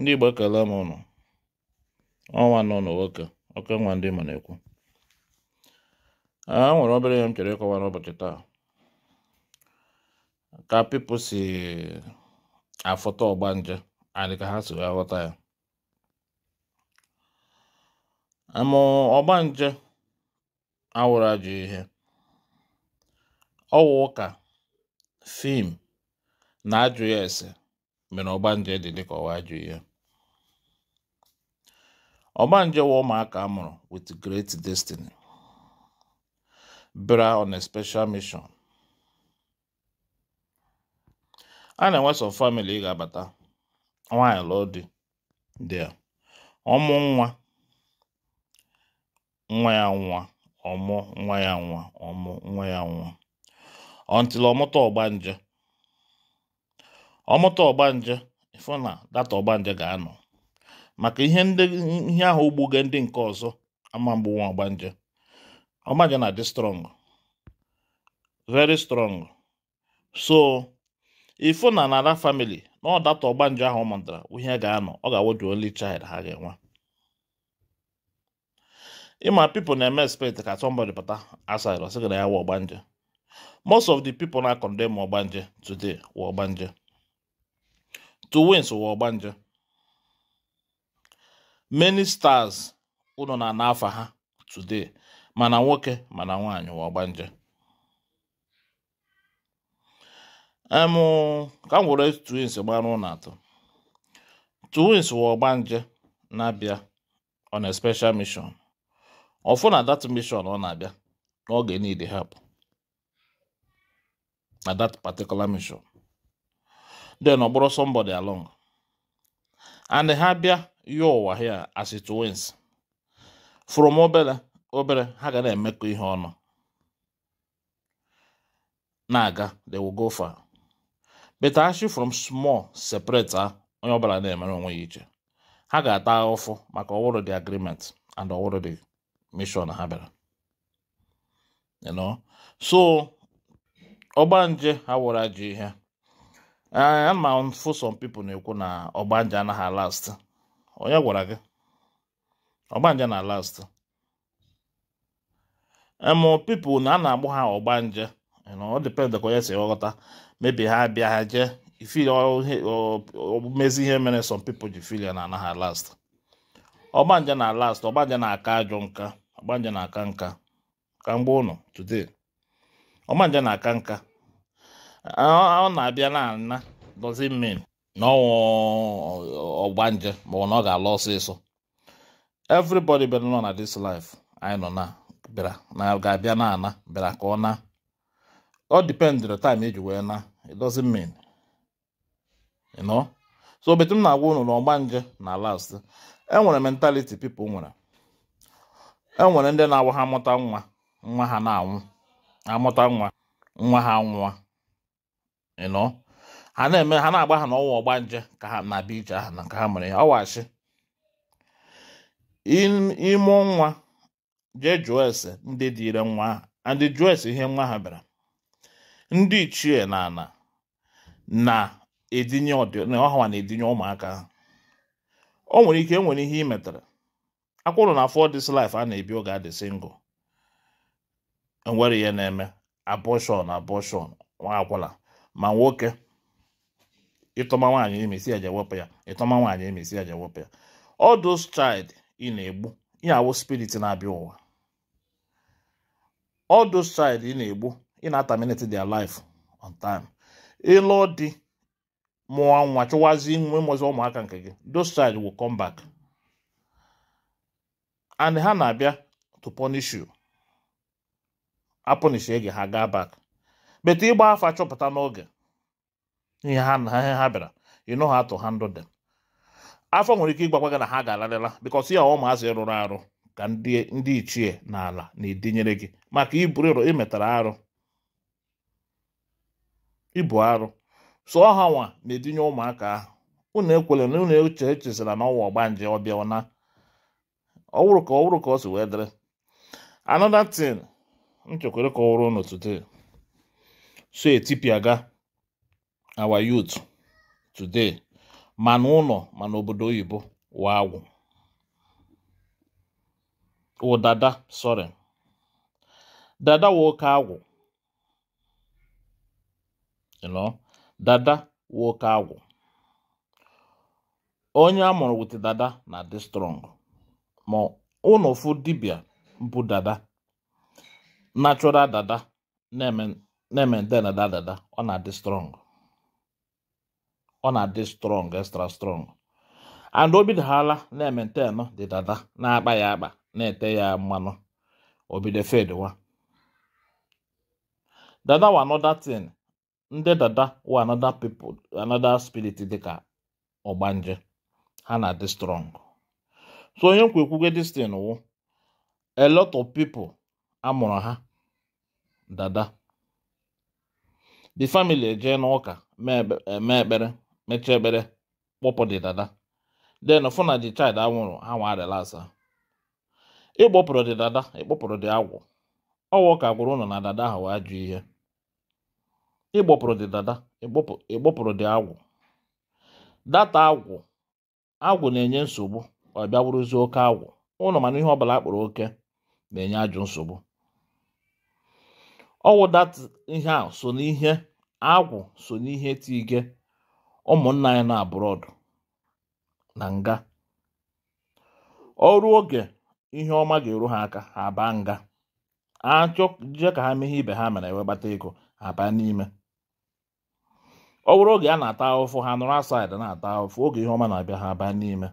ndị Igbo ekele m ụnụ ọnwa nọ n'ụwoke oke nwa ndị Igbo na-ekwu a ah, nwere obere ihe m chere ịkọwa n'ụbọchị taa ka pipo si afụta ọgbanje adị ka ha si wee ghọta ya Ma ọgbanje awụrụ ajọ ihe ọwụ ụka fim na ajụ ya ese mere ọgbanje dị dịka ọwa ajụ ihe ọgbanje wa ụmụaka a mụrụ with great destiny bra on a special mission a na-enwe sọ family ga-abata nwaanyị lụọ di dị ọmụ nwa nwa ya nwa ọmụ nwa ya nwa ọmụ nwa ya nwa ọntịla ọmụta ọgba nje ọmụta ọgbanje ịfụ na data ọgbanje ga-anọ maka ihe ihe ahụ ogbuge ndị nke ọzọ ama mgbu nwa ọgbanje ọgbanje na-adị strong very strong so ịfụ na nara family na ọ data ọgbanje ahụ mụtara ihe ga-anọ ọ ga-awụ the only child ha ga-enwe ịma people na-eme expect ka somebody pụta aside ọ na ya wa ọgbanje most of the people na-akọndem ọgbanje today wa ọgbanje to win ọgba ọgbanje many stars ụlọ na ana afa ha today mana nwoke mana nwaanyị ụwa ọgbanje um, emu ka m were twins gbara ụlọ atọ twins ụwa ọgbanje na-abịa on a special mission ọfụ na that mission ọ oh, na-abịa n'oge niile hapụ na that particular mission then ọ somebody along and ha bịa ya ụwa here as it wins from obere ha ga na-emekọ ihe ọnụ na-aga they will go far but actually from small separate ah, onye ọbụla na-emere onwe ya iche ha ga-ata ahụfụ maka ọwụrụ the agreement and ọwụrụ the mission ha bịara you know so ọgbanje ha wụra ji ihe Eh, ama mfụ some people na-ekwu na ọgbanje anaghị alast onye gwara gị ọgbanje na alast emu eh, people na a na-agbụ ha ọgbanje ọ depend ka onye si ghọta mebi ha bịa ha jee ifili oh, oh, oh, mezi ihe mere some people ji filia na anaghị alast ọgbanje na alast ọgbanje na-aka ajọ nka ọgbanje na-aka nka ka mgbe ụnụ today ọgbanje na-aka nka ọ na-abịa na ana doesn't mean na ọgbanje maọbụ na ọ ga alụ ọsịsọ everybody bịara nọ na this life anyị nọ na bịara na ga-abịa na ana bịara ka ọ na ọ depend the time eji wee na it doesn't mean you know so betu m na-agwa unu na ọgbanje na last enwere mentality pipo nwere enwere ndị na-agwa ha amụta nwa nwa ha na-anwụ amụta nwa nwa ha nwụọ ịnọ ha na-eme ha na-agba ha n'ọnwa ọgbanje ka ha na abịa ije ahụ na ka ha mere ya ọwachi ime nwa jee jụọ ese ndị dịire nwa ha ndị jụọ ese ihe nwa ha bịara ndị ichie na ana na-edinye ọha na-edinye ụmụaka ha o nwere ike enwere ihe ị metara akwụrụ na for this life a na-ebi oge adị single enwere ihe na-eme abortion abortion nwa agwụla. ma nwoke ịtọma nwaanyị emesi ya jewepụ ya ịtọma nwaanyị emesi ya jewepụ ya all those child ị na-egbu ihe awụ spirit na-abịa ụwa all those child ị na-egbu ị na-ataminate their life on time ịlụ di mụọ nwa chụwazi nwe mụzi ụmụaka nke gị those child will come back and ha na-abịa to punish you apụnishie gị ha gaa back bete ịgba afa chọpụta n'oge ihe ha na ha bịara you know how to handle them afọ nwere ike ịgbakwa gị na ha ga-alarịla because ya ụmụazị rụrụ arụ ka ndị ichie na ala na-edinyere gị maka ịrụ imetara arụ ibu arụ sọ ọha nwa na-edinye ụmụaka ahụ unu ekwele na unu eche echezira na ọwa ọgbanje ọbịa na ọwụrụ ka ọwụrụ ka ọ si wee dịrị another thing nchekwere kọwara unu today so ga our youth today mana ụlọ mana obodo oyibo wawụ wụ dada sorry dada woke agwụ dada woke agwụ onye a mụrụ wit dada na dị strong ma ụnụ fụ dibịa bụ dada natural dada na-eme na-emente na dada ọ na-adị strong ọ na-adị strong extra strong and o ala na-emente nọ dị dada na-akpa ya akpa na-ete ya mmanụ obido fedwa dada wa another thing ndị dada wa another people another spirit dịka ọgbanje ha na-adị strong so onye nkwa ekwugo this thing wụ oh. a lot of people amụrụ ha dada the family ejee n'ụka eh, mee ekpere mechaa ekpere kpọpụ di dada then fụ na the child anwụrụ ha nwa relasa ịkpọpụrụ dị dada ịkpọpụrụ di agwụ ọwa ụka gwụrụ ụnụ na dada ahụ wee jụ ihe ịkpọpụrụ di dada ịkpọpụrụ di agwụ data agwụ agwụ na-enye nsogbu ọbịa bịa oke agwụ ụnụ mana ihe ọ bụla akpọrọ oke na-enye ajụ nsogbu ọwụdat ihe a so n'ihe agwụ so n'ihe tige ụmụnna anyị na abụrọdụ na nga ọrụ oge ihe ọma ga-eru ha aka ha baa nga achọje ka ha meghe ibe ha mere ewe gbata ego ha n'ime ọ bụrụ oge a na-ata ahụfụ ha nụrụ asaịdị na-ata ahụfụ oge ihe ọma na-abịa ha abaa n'ime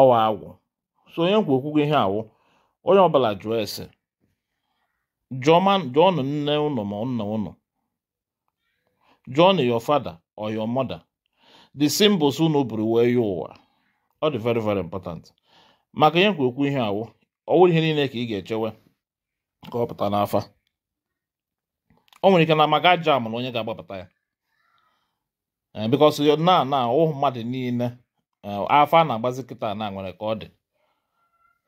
ọwa agwụ so onye nkwu okwu ihe awụ onye ọbụla jụọ ese john nne ụnụ ma nna ụnụ jụọnụ your father or your mother the symbols unu buru wee ya ụwa ọ dị very very important maka ihe nkwa ihe awụ wụrụ ihe niile ka ị ga-echewe ka ọ pụta n'afa o nwere ike na maka aja amụrụ onye ga-agbapụta ya eh, because na na ụmụ mmadụ niile eh, afa na-agbazi kịta na nwere ka ọ dị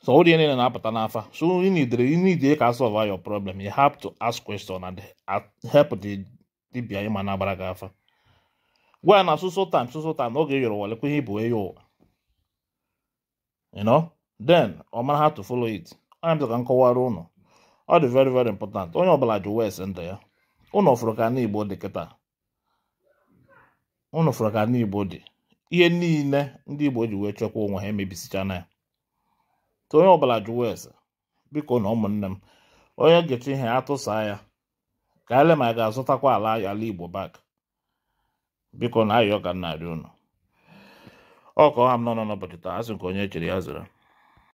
So all the na apụta n'afa. So you need you need you solve your problem. You have to ask question and help the ịma na-agbara gị afa. Gwa na so so time so so time oge yọrọ wale kwe ihe bụ eyo ụwa. You know? Then ọ mara to follow it. Onye m ka Ọ dị very very important. Onye ndụ ya. dị Ihe niile ndị Igbo ji wee onwe ha ya. ka onye ọbụla jụwa ese biko na ụmụnne m onye gecha ihe atụsa ya ka ele ma ga-azụtakwa ala ala igbo bak biko na ayọ ka nna arị unu ọ ọha m nọ n'ụbọchị taa asị nke onye echere ya zụrụ